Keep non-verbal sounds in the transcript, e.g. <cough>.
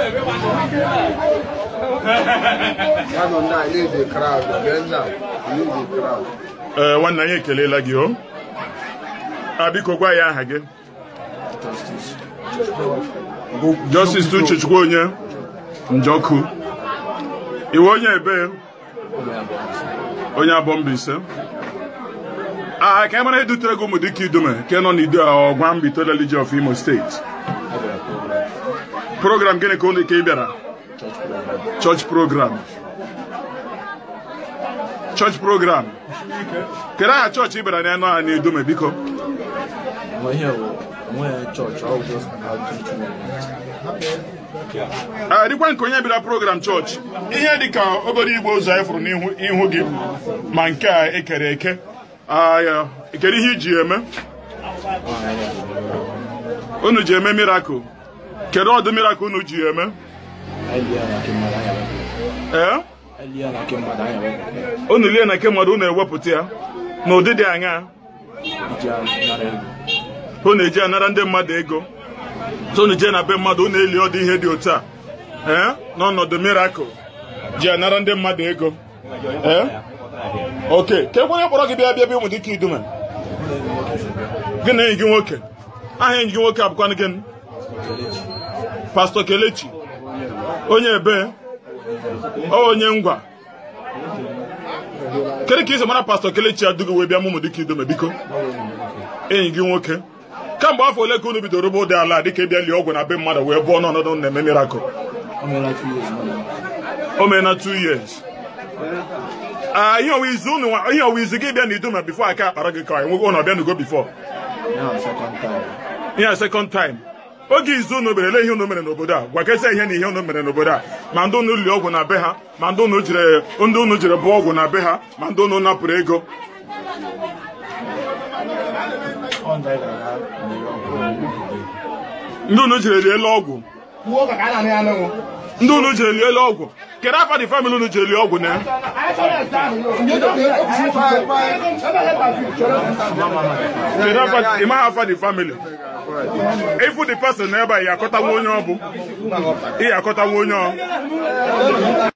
<laughs> ee eh, nwanna anyị ekelela gị o a ah, biko gwa ya aha gị Justice Uchechukwu onye Njoku iwe onye ebe onye abụọ Mbaise aha ka e mara edutere gị ụmụ dịka idume nke nọ n'idu a ọgwa mbitoleliji of Imo steeti program gịnị ka ụlọ ike ị bịara church program church program kedu aha chọọchị ịbịara bịara n'anụ aha na-edume biko dịkwa nke onye bịara program chọọchị ihe dị ka obere igwe ụzọ anyị furu n'ihu gị ma nke a ekere eke ah, Ekere ihe iji eme unu ji eme ah, mirakụl kedu ọdụ miracle unu ji eme eh? ee unu lie na nke mmadụ unu ewepụta ya na ụdị dị anya ụ na-eji anara ndị mmadụ ego unu jee na be mmadụ unu eli ọdị ihe dị otu a ee eh? n'ọnọdụ miracle ji anara ndị mmadụ ego ee eh? oke ke kwere kpọrọ gị bịa bịa bịa ụmụ dike idume gị na enyi gị nwoke aha enyi gị nwoke abụkwanụ gịnị Pastọ Kelechi onye ebe onye ngwa kedu ka isi mara Pastọ Kelechi adụghị wee bịa mụmụ dịka idome biko enyi gị nwoke kemgbe afọ ole ka unu bidoro ụgbọ ụdị ala dịka ịbịa lie ọgwụ na be mmadụ wee bụọ n'ọnọdụ na-eme mirakụl o mee na 2 years ah, ihe ọwa izu gị bịa na idoma bifo aka akpara gị ka nwe na ọbịa n'ugo bifo ihe a second time oge izu unu mere ele ihe unu mere n'obodo a gwakezi ihe na ihe unu mere n'obodo a ma ndị unu li ọgwụ na be ha ma ndị unu jiri ndị unu jiri bụọ ọgwụ na be ha ma ndị unu napụrụ ego ndị unu jiri lie ọgwụ ndị unu jiri lie ọgwụ kere afa dị famili unu jiri lie ọgwụ na ya. afa ịmaghị afa dị famili di dị person ebe a ị akọtawa onye ọ bụ ị akọtawa onye ọ